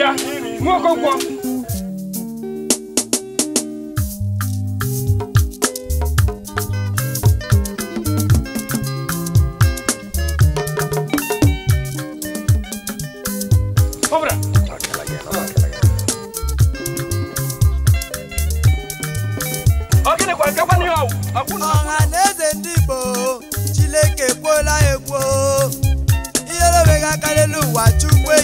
Yeah, nwa Okonkwo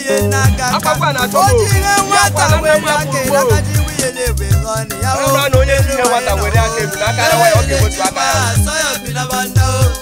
wiye na kaka ojire nwata were aka lakaji wiye na-ebe lọ n'iya o ele were o ele ma asọyọ bi na banda o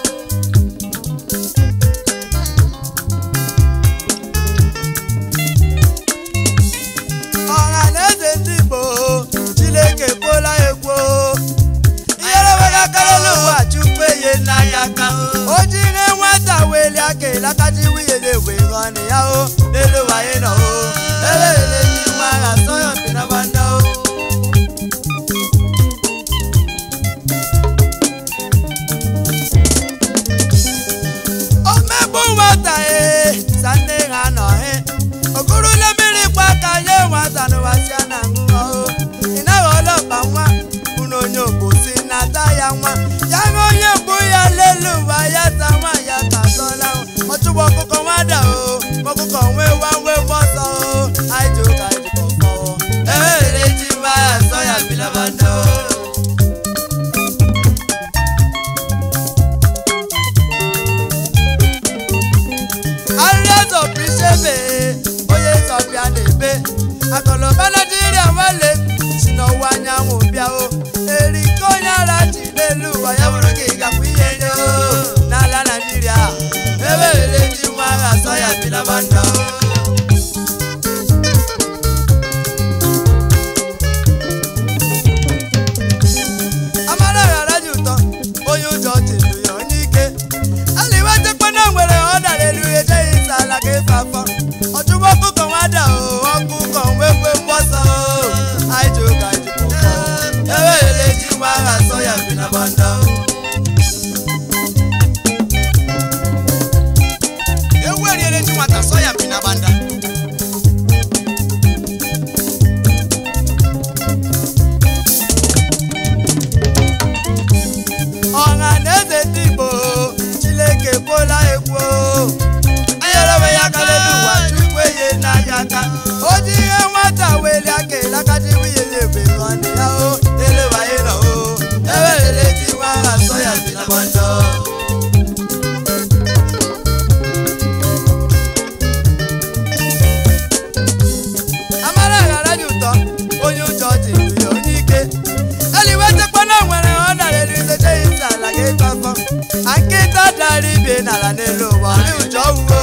nara n'elu ụwa n'ụjọ uwe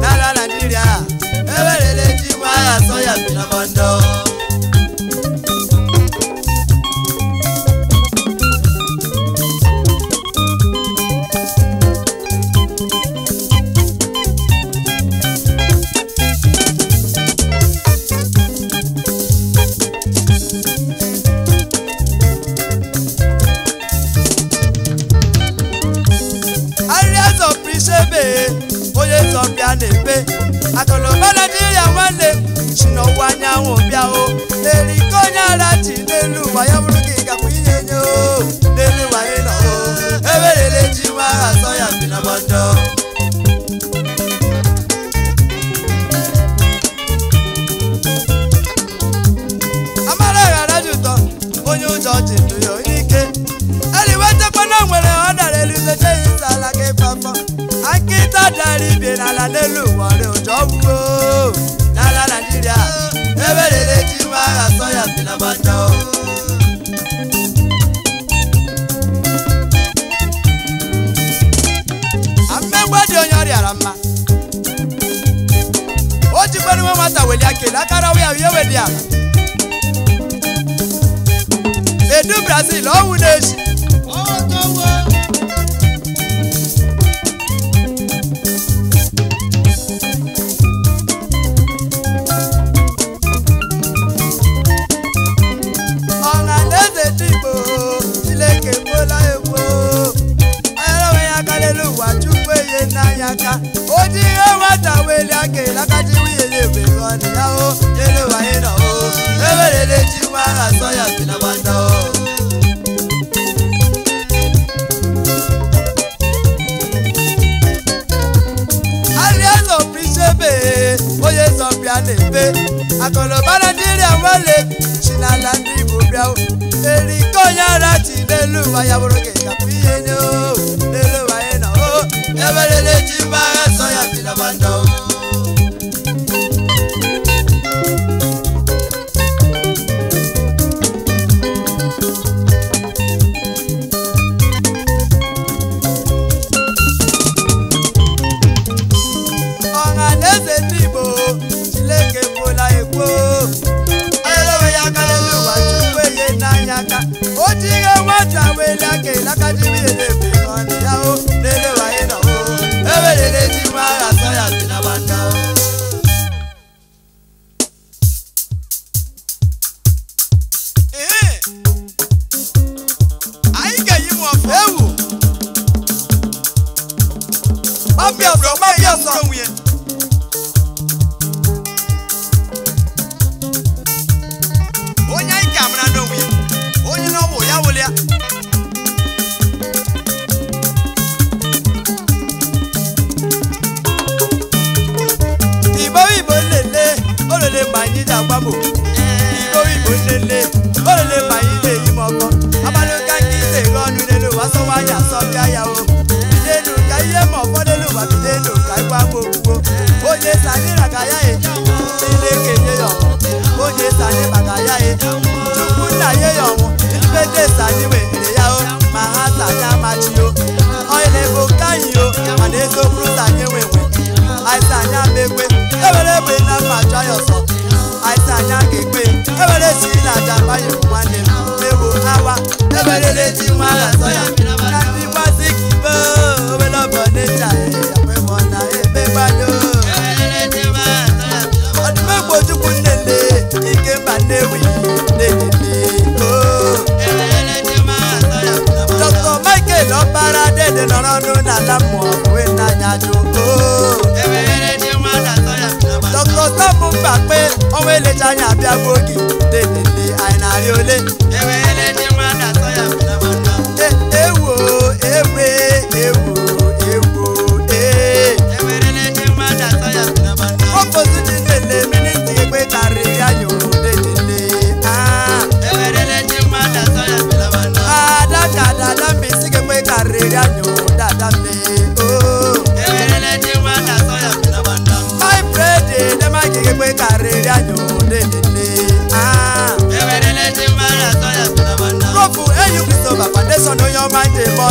n'ala Naịjirịa ewere leji nwa ya sọ ya bi na mọndọ a na-eme akụnụba naijiria nwanne si n'ọwụwa anyanwụ bịa o eriko onye ara ji n'elu ụwa ya bụrụ ka ị gakwa ihe nye o n'elu ụwa o ewerele ji nwa aha sọ ya bi na mọjọ amara ghara ji ụtọ onye ụjọ ji ndụ ya ajara ibe n'ala n'elu ụwa rị ụjọ gwuo n'ala naijiria ebe rere ji nwa agha sọ ya bi na gbata amegbe dị onye ọrịara mma o jikwere nwe nwata weli akele akarawa ya ihe di ara. edu brazil ọnwụ na esi lakati wiyeye bengoni yawo yele wayena o ebelele tiwa asoya sinabanda o. oye sọpia n'ebe akọlọbara dịrị awale chinala ndị igbo bịa o eriko nyara chi n'elu ụwa ya bụrụ gị gapụ ihe nye o n'elu ụwa ya na o eberele chi mbagha que la calle viene nwayọ nwanne m mewo awa eberere ji nwa ya atọ ya na ndị gbaziki be obere ọbọ n'eji anyị akwemọ na ebe gbado ọdụmegbo chukwu nnenne ike mba nnewi na-enye dr michael ọkpara dede nọrọ ọnụ n'ala mmụọ wee n'anya mba kpe ọnwa elecha anya abịagbuo oge delele anyị na-arị ole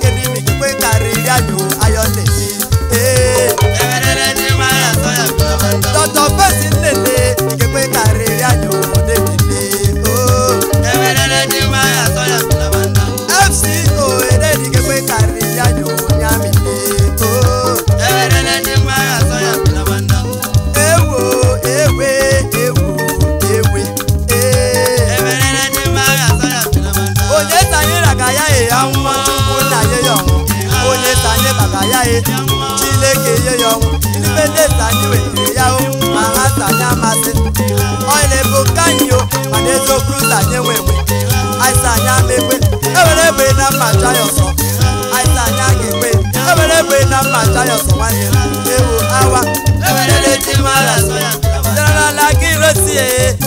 Que vive mi yaye Chileke yeyo Nipende sanyiwe yao Mahasa nyamase Oile bukanyo Manezo kruza nyewewe Aisa nyamekwe Ewelewe na machayo so Aisa nyakekwe Ewelewe na machayo so wanye Ewu awa Ewelele jimara soya Jara la kirosiye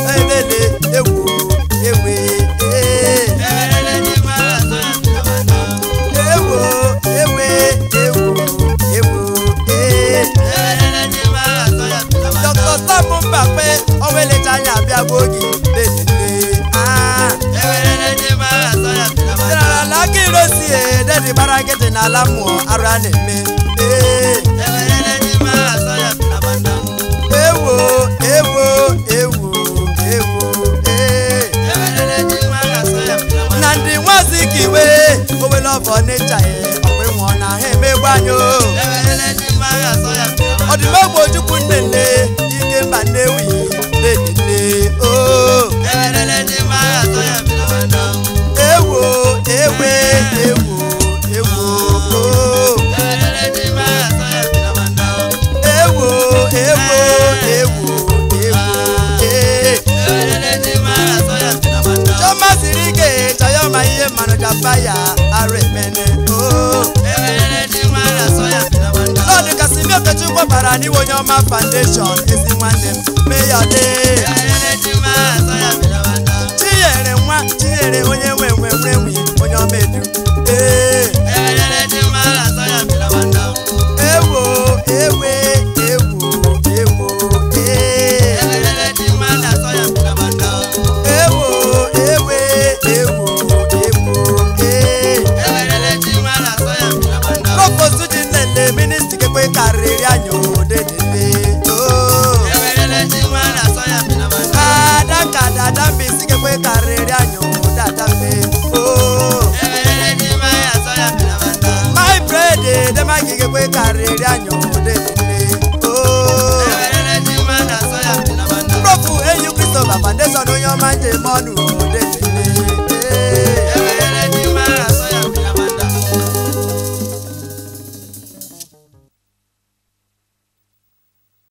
ndị gbara nkịtị n'ala mmụọ arụ a na-eme ewo ewo ewo ewo na ndị nwazi ka iwe owele ọbọ n'ịcha ya ọkwa ịnwụọ na ha emegbu anyị o ọdịmọgwụ ojukwu nnenne ike mba nnewi fire aremene Lord kasị mi okechukwu bara n'iwe onye ọma foundation ezi nwanne m meyọde chinyere nwa chinyere onye nwe nwe nwe onye ọma